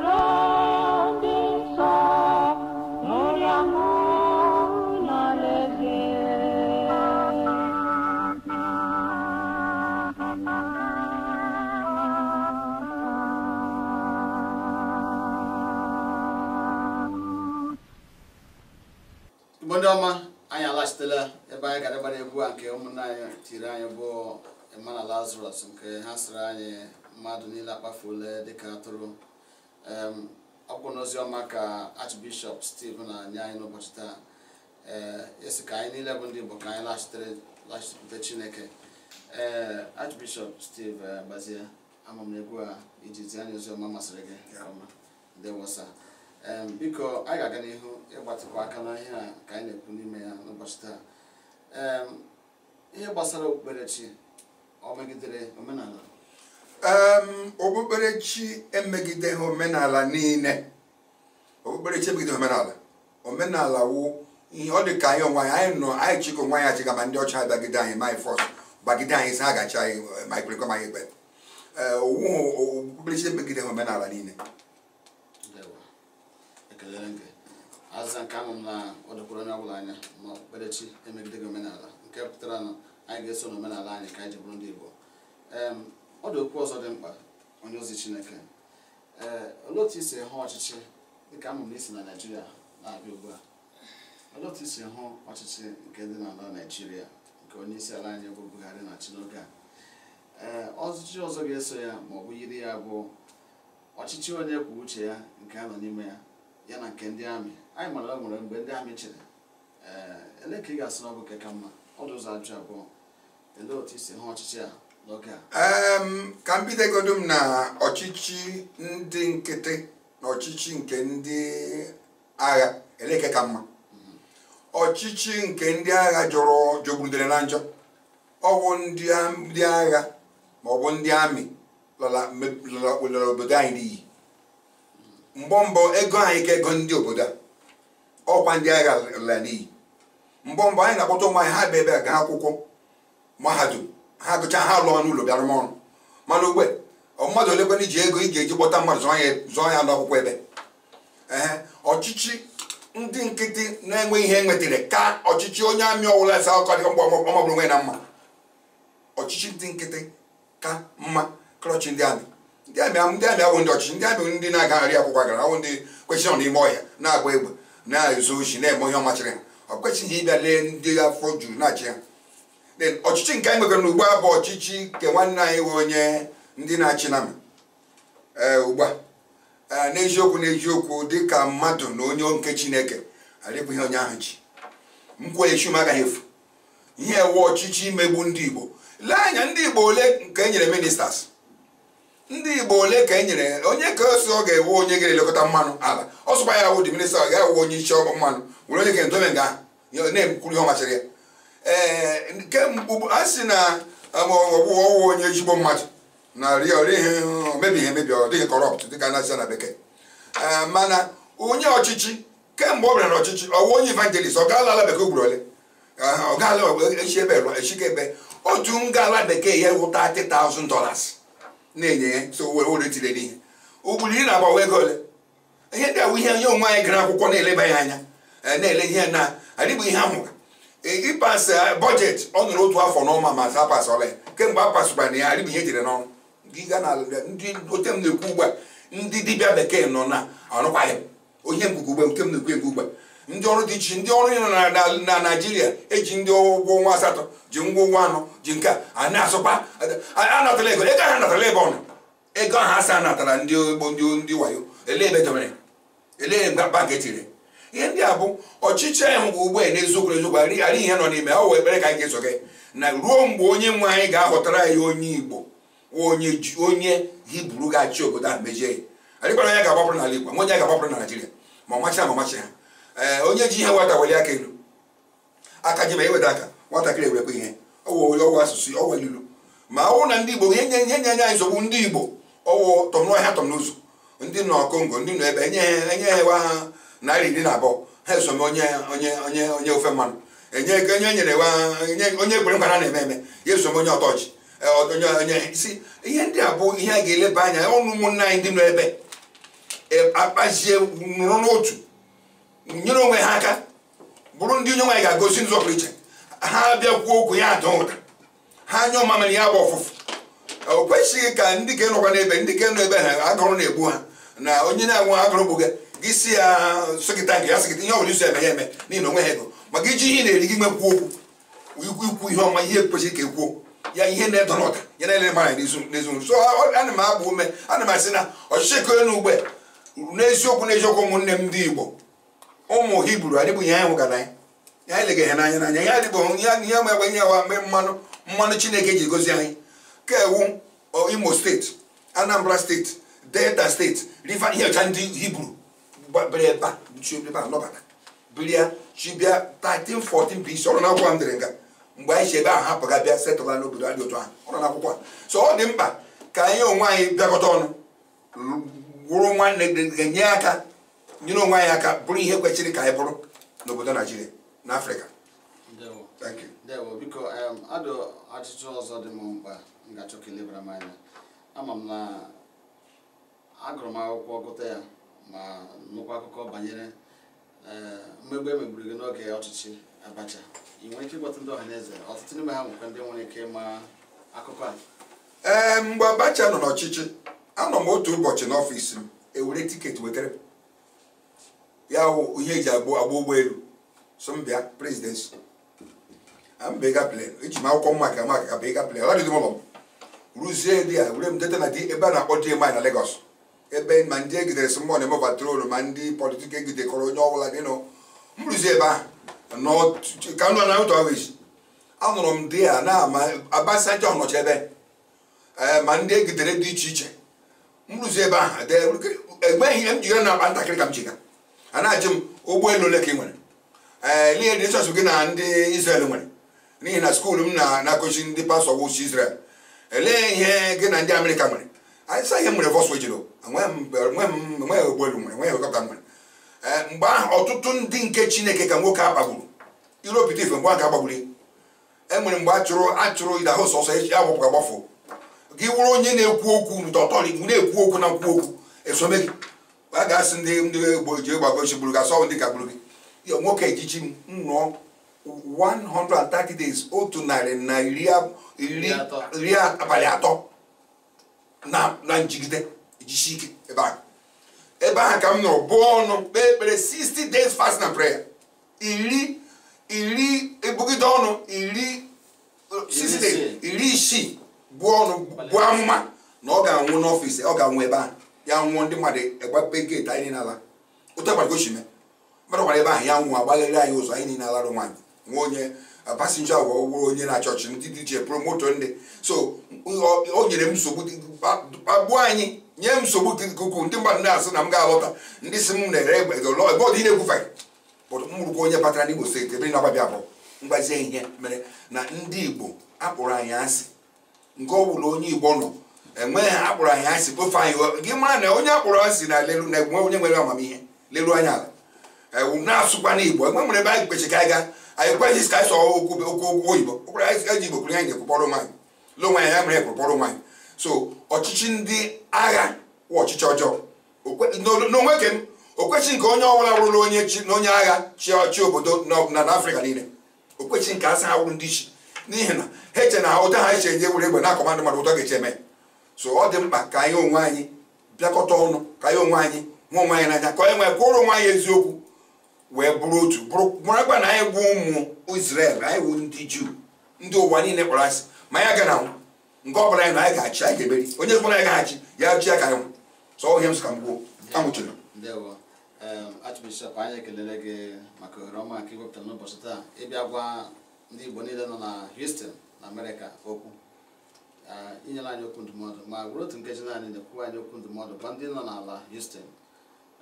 ọma anyị alaghachitela ebe anyị gara gbara egwu a nke na anyị tiri anyị bụ emmanuel lazarus nke ha sịrị anyị mmadụ niile akpafuola dịka atụrụ ọkwụ n'ozi ọma ka archbishọp steve na-nye anyị n'ụbọchị taa ee eh, esi ka anyị niile bụ ndị igbo ka anyị laghachitere chineke ee eh, archbishọp steve eh, gbazie ama a iji zi anyị ozi ọma masịrị gị wọsa. biko anyị ga-aga n'ihu ịgbatịkwa aka n'ihe ka anyị na-ekwu n'ime ya n'ụbọchị taa ihe gbasara okpukperechi ọ megidere omenala okpukperechi emegideghị omenala niile okpukperechi emegideghị omenala omenala wụ ihe ọ dị ka anyị onwe anyị nọ anyị chịkọ nwa anyị achịga ma ndị ọcha bagide anyị ma anyị fọs bagide anyị si ha gacha anyị ma anyị kwerekwa ma anyị ekpe okpukperechi emegideghị omenala niile elere nga azịza nke ama m na ọ dịkwara onye ọbụla anya ma okpukperechi emegide gị omenala nke pụtara na anyị ga-eso n'omenala anyị ka anyị ji bụrụ ndị Igbo ọ dị okwu ọzọ dị mkpa onye ozi Chineke ee olee otu isi hụ ọchịchị dịka ama m na isi na naijiria na-abịa ugbu a olee otu isi hụ ọchịchị nke dị n'ala naijiria nke onye isi ala anyị bụ Buhari na Tinubu a ee ọchịchị ọzọ ga-eso ya ma ọ bụ yiri ya bụ ọchịchị onye kwu uche ya nke a nọ n'ime ya ya na nke ndị amị anyị mara nwere mgbe ndị amị chere ee eh, ele ka ị ga-asị n'ọbụ nke ka mma ọdụ ụzọ ajụ abụọ ele otu isi ha ọchịchị a n'oge a ka m bidogodo m na ọchịchị ndị nkịtị na ọchịchị nke ndị agha eleke ka mma mm-hmm. ọchịchị nke ndị agha jọrọ jọgburudere na njọ ọwụ ndị agha ma ọ bụ ndị amị lọla obodo anyị n'iyi mbọ mbọ ego anyị ka ego ndị obodo a ọkwa ndị agha la n'iyi mbọ mbọ anyị na-akpọta ụmụ anyị ha bụ ebe a gaa akwụkwọ mahadum ha gụcha ha lụọ n'ụlọ bịara m ọrụ mana ugbe mmadụ olekwana iji ego ị ga-eji kpọta mmadụ zụọ ya n'akwụkwọ ebe ee ọchịchị ndị nkịtị na-enwe ihe e nwetara ka ọchịchị onye amị ọwụla asa akọ dị mgbe ọmọbụrụ nwe na mma ọchịchị ndị nkịtị ka mma klọchị ndị amị ndị amị ndị amị awụ ndị ọchịchị ndị amị ndị na-agagharị akwụkwọ gara awụ ndị kwechịrị n'ime ọhịa na-agba egbe na-ezo ochi na-eme ihe ọmachịrị ha ọ kwesịghị ịbịa lee ndị afọ juru na-achị ha ọchịchị nke anyị nwegara n'ugbu a bụ ọchịchị nke nwanne anyị nwe onye ndị na-achị na eh, ugbu a eh, n'eziokwu n'eziokwu dịka mmadụ na onye nke chineke ihe onye ahụ ji nkwenyechi m agaghị efu ihe ewu ọchịchị imegbu ndị igbo lee anya ndị igbo ole nke enyere nyere ndị igbo ole ka e nyere onye ka osi ọ ga-ewe onye ga-elekọta mmanụ ala ah, ọ sụkwa ya awụ diminista ọ gaghị onye isi ọkụ mmanụ were onye ga-edobe nga na-ekwuru ihe ọ machara ya ee eh, kemgbe a sị na ọwụwa onye ezigbo mmadụ na mebighị emebi ọ dịghị kọrọpt dịka na-asị na bekee eh, mana onye ọchịchị kemgbe ọ bịara na ọchịchị ọwụ onye ivangelist ọ gaala ala bekee ugboro ole eh, ọ gaala echi e, ebe echi ebe otu nga bekee ya wụ $30,000 na-enye ya so owere tinyere ihe ugburu iri na-agbawa ego ole ihe ndị awụ ihe onye onwe anyị gara akwụkwọ na-eleba ya anya eh, na-ele ihe na adịbụ ihe ahụ eh, ịpas eh, bọjetị ọ nụrụ otu afọ n'ọma ma sa pasala ya kemgbe a pasụkwara ya adịbụ ihe jere n'ọrụ ndị oche m na-ekwu ugbu a ndị dibịa bekee nọ na arụkwaghị onye mbugo ugbe nke m na-ekwu egwu ugbu a ndị ọrụ dị iche ndị ọrụ na naijiria eji ndị ụgwọ ọnwa asatọ ji ngwa ụgwọ anọ ji nke a na-asụkwa anatala ego ego ha natala ebe ọna ego ahụ asa natara ndị ogbo ndị wayo ele ebe dobere ele bank etiri ihe ndị a bụ ọchịchị anyị ngwa ugbu a n'eziokwu eziokwu arịghị ihe nọ n'ime ọ wee ekpere ka anyị ga na ruo mgbe onye nwe anyị ga-ahọtara ya onye igbo onye hibru ga-achị obodo ahụ mejie ya adịkwara ya ga-agbapụrụ n'ala igbo nwenye ya ga-agbapụrụ na naijiria ma ọmachi ma ọmachi ha Eh, onye ji ihe nwata weli aka elu aka ji ma eweda aka nwatakịrị ewekwa ihe ọwụ asụsụ ọwụ ilu ma ọwụ na ndị igbo ihe nye nye anyị nsogbu ndị igbo ọwụ tọmnọhịa tọmnụzụ ndị nọ kongo ndị nọ ebe enye ha enye ha ha narị iri na abụọ ha esome onye onye onye onye ofe mmanụ enye ego onye nyere wa onye ekwere nkwa na eme eme ya esome onye ọtọchị eh, onye onye si ihe ndị a bụ ihe a ga-eleba anya ọnụ ụmụnne anyị ndị nọ ebe eh, akpazie nụrụ n'otu nyere onwe ha aka bụrụ ndị onye nwaanyị ga-agosi nzọpụrụ iche ha bịa kwuo okwu ya ada ụda ha anya ọma mere ya bụ ọfụfụ o kwesịghị ka ndị ka nọkwa n'ebe ndị ka nọ ebe ha agụrụ na-egbu ha na onye na-anwụ agụrụ bụ gị si ya sịkịta nke ya sịkịta ihe ọbụla iso eme ya eme n'ihi na onwe ha ego maka iji ihe na-eri gị nwekwuo okwu ikwu ihe ọma ihe kwesịrị ka ekwuo ya ihe na-edo n'ụda ya na-ele mara n'ezinụlọ so ana m agba ume ana m asị na ọchịchị eko n'ugbe n'eziokwu n'eziokwu ụmụnne m ndị Igbo ụmụ hibru bụ ihe anyị hụgara anyị anyị leghị ha n'anya n'anya ihe adịbụghị ihe ma egbe ihe awa mgbe mmanụ mmanụ chineke e ji gozi anyị ka ewu imo steeti anambra steeti delta steeti river ihecha ndị hibru bịa chibia 1314 BC ọrụ n'akwụkwọ m dere nga mgbe anyị si ebe ahụ hapụga bịa setụla n'obodo adị otu ahụ ọrụ n'akwụkwọ so ọ dị mkpa ka anyị onwe anyị bịakọta ọnụ wụrụ nwanne ga-enye aka nyere onwe anyị aka bụrụ ihe kwechiri ka anyị bụrụ n'obodo naijiria na afrịka biko adụ ajụjụ ọzọ dị m mkpa m ga-achọ m anya ama m na agụrụ m akwụkwọ gụta ya ma nụkwa akụkọ banyere e, mmegbu emegburu gị n'oge ọchịchị abacha ị nwere ike ịgbata ndị ọhaneze ọtụtụ n'ime ha nwekwa ndị nwere ike ịma akụkọ a ee mgbe abacha nọ n'ọchịchị anọ m otu ụbọchị n'ọfịs m ewere tiketi wetere ya wụ ihe eji agba agba ụgbọelu so m bịa prezidensi abịga plen eji m akwụkwọ maka maka ka bịga plen ọ dịdị ụlọ m rụzie dị ya were m deta na dị ebe a na-akpọ DMI na legos ebe ma ndị egidere si mmụọ na-eme patrolu ma ndị politik egidekọrọ onye ọbụla dịnụ m rụzie ebe ahụ ka nụ na ụtọ echi anụrụ m dị ya na ma Abasanjo nọcha ebe eh, ma ndị egidere dị iche iche m rụzie ebe ahụ e egbe ihe m ji na akpa ntakịrị ka m ji a na-ajụ m ụgbọelu ole ka ị nwere ee eh, n'ihe dị chọọchị gị na ndị Israel nwere n'ihi na skuulu m na-akụzi ndị pastọ wụchi Israel elee ihe gị na ndị Amerịka nwere anyị sa ihe m nwere vọsụ ejiro enweghị ụgbọelu nwere enweghị helikọpta nwere ee eh, mgbe ahụ ọtụtụ ndị nke Chineke ka nwoke a kpagburu iropụta ife mgbe ahụ agbagburu e nwere mgbe achụrụ achụrụ ịdahụ sọsọ echi agbapụ agbafọ gị wụrụ onye na-ekwu okwu na-ekwu okwu na nkwuokwu esome gị a ga-asị ndị ndị egbo ji egbagochi gburu gasị ọnwụ dịka gburu gị nwoke ejichi m nụọ 130 days otu narị na iri abalị atọ na njigide ejichi ike ebe ahụ ebe ahụ ka m nọrọ bụọ ọnụ kpee ekpere 60 days fast na prayer iri iri ebugide ọnụ iri 60 days iri isii bụọ ọnụ bụ amụma na ọ ga-anwụ n'ọfịs ọ ga-anwụ ebe ahụ ya nwụọ ndị mmadụ egbape geeti anyị n'ala ala ụta gbara gochime mmadụ gwara ebe ahụ ya nwụọ agbagharị anyị ụzọ anyị niile alarụ nwaanyị nwa onye pasinja agwa ụgbọrọ onye na chọọchị ndị dije promoto ndị so o nyere m nsogbu gbuo anyị nye m nsogbu dị ukwuu ndị mmadụ na-asị na m ga-alọta ndị si m na-ere egbe lọ ebe ọ dị na-egwufe bụtụ m onye batara n'Igbo steeti ebe na-agbabịa abụọ mgbazie ihe mere na ndị Igbo akpụrụ anyị asị nke ọ bụla onye Igbo nọ enweghị akpọrọ anyị asị bụ anyị gị mara na onye akpọrọ asị na lelu na egwu onye nwere amamihe lelu anya ala ewu na-asụkwa na igbo enwe nwere ebe anyị kpechi ka anyị gaa anyị kweghị ka anyị okwu oyibo okpere anyị ji igbo kwuru anyị na-ekwukpọrọ nwaanyị le anyị ya mere nwanyị. so ọchịchị ndị agha wụ ọchịchị ọjọọ n'onwe ke nke onye ọbụla onye chi na onye agha chi obodo na afrịka niile okwechi nke asa ha wụrụ ndị chi n'ihi na ha eche na ụta ha eche nye na ụtọ ga-eche so ọ dị mkpa ka anyị onwe anyị bịakọta ọnụ ka anyị onwe anyị nwa onwe anyị n'anya ka onye nwee kwụrụ onwe anyị eziokwu wee bụrụ otu bụrụkwa na anyị bụ ụmụ Israel anyị bụ ndị Juu ndị ụwa niile kpara asị ma anyị aga na nke ọ anyị na anyị ga-achị anyị ga-emeri onye ọbụla anyị ga-achị ya chi ya ka anyị sọ ọhịa m sị ka m gwuo anwụchụrụ Archbishop anyị ekelele gị maka ohere ọma nke iwepụtara n'ụbọchị taa ịbịa gwa ndị Igbo niile nọ na Houston na Amerịka okwu inyere anyị okwu ndụmọdụ ma gwụrụ otu nkeji naanị na-ekwuwa anyị okwu ndụmọdụ gwa ndị nọ n'ala Houston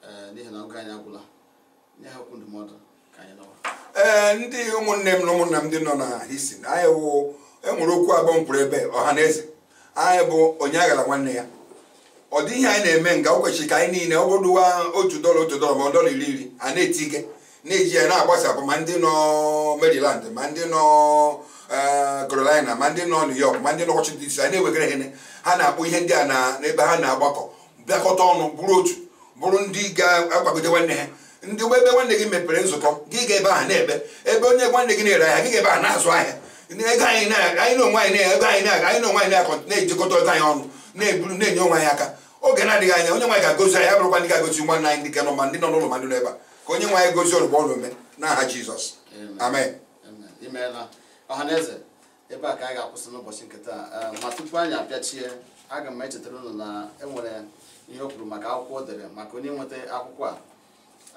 eh, n'ihi na oge anyị agwụla nye ha okwu ndụmọdụ ka anyị ee ndị ụmụnne m na ụmụnna m ndị nọ na Houston anyị wụ enwere okwu abụọ m ebe ọha na eze anyị bụ onye aghara nwanne ya ọ dị ihe anyị na-eme nga o kwesịrị ka anyị niile ọ bụrụwa otu dọla otu dọla ma ọ dọla iri iri a na-eti ike na-eji ya na-agbasapụ ma ndị nọ Maryland ma ndị nọ Eh, Carolina ma ndị nọ New York ma ndị nọ Washington DC anyị na-ewegara ihe ha na-akpọ ihe ndị a n'ebe ha na-agbakọ bịakọta ọnụ bụrụ otu bụrụ ndị ga-akwagide nwanne ha ndị ụgbọ ebe nwanne gị mepere nzukọ gị ga-ebe ahụ na-ebe ebe onye nwanne gị na-ere ahịa gị ga-ebe ahụ na-azụ ahịa ego anyị na-onwe anyị na-ego anyị na-aga anyị na onwe anyị na-akọ na-ejikọta ego anyị ọnụ na-eburu na-enye onwe anyị aka oge na-adịghị anya onye nwaanyị ga-agozi anyị abụrụkwa ndị ga-agozi nwanne anyị ndị ka nọ ma ndị nọ n'ụlọ ma ndị nọ ebe a ka onye nwaanyị gozi ọrụ gbe ọrụ ome n'aha Jizọs amen ọhaneze ebe a ka anyị ga-akwụsị n'ụbọchị nke taa ehm, ma tupu anyị abịachie aga m echetara unu na enwere ihe o kwuru maka akwụkwọ o dere maka onye nweta akwụkwọ a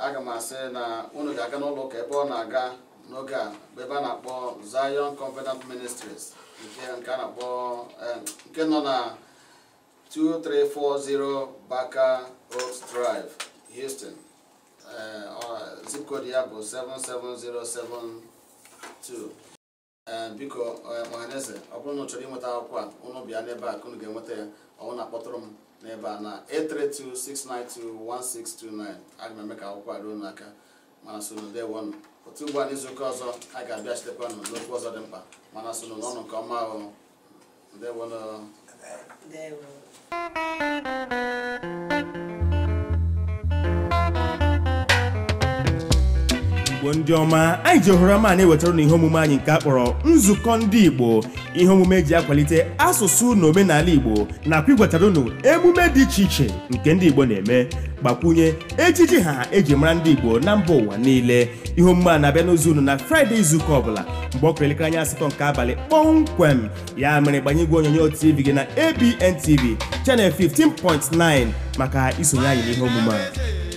aga m asị na unu ga-aga n'ụlọ ụka ebe ọ na-aga n'oge a ebe a na-akpọ Zion Covenant Ministries nke a na-akpọ ehm, nke nọ na 2340 Baker Oaks Drive Houston ehm, zip code ya bụ 77072 Eh, biko ọhaneze eh, ọ bụrụ na chọrọ ịnweta akwụkwọ a ụnụ bịa n'ebe a ka ụnụ ga-enweta ya ọnwụ na-akpọtụrụ m n'ebe a na 832-692-1629 aga m eme ka akwụkwọ a ruo n'aka mana sonu dewonụ otu ugbu a n'izuụka ọzọ a ga-abịa chitekwa nụ n'okwu ọzọ dị mkpa mana sonu n'ọnụ nke ọma ahụ ndewonụ igbo ndị ọma anyị ji ohere ọma na-ewetara na ihe omume anyị nke akpọrọ nzukọ ndị igbo ihe omume ji akwalite asụsụ na omenala igbo nakwa igwetara unu emume dị iche iche nke ndị igbo na-eme gbakwunye ejiji ha eji mara ndị igbo na mba ụwa niile ihe omume a na-abịa n'ozi unu na fraịde izuụka ọbụla mgbe ọ kụrụ elekere anya asatọ nke abalị kpọmkwem ya mere gbanye igwe onyonyo tv gị na ABN TV chanel 15.9 maka isonye anyị n'ihe omume a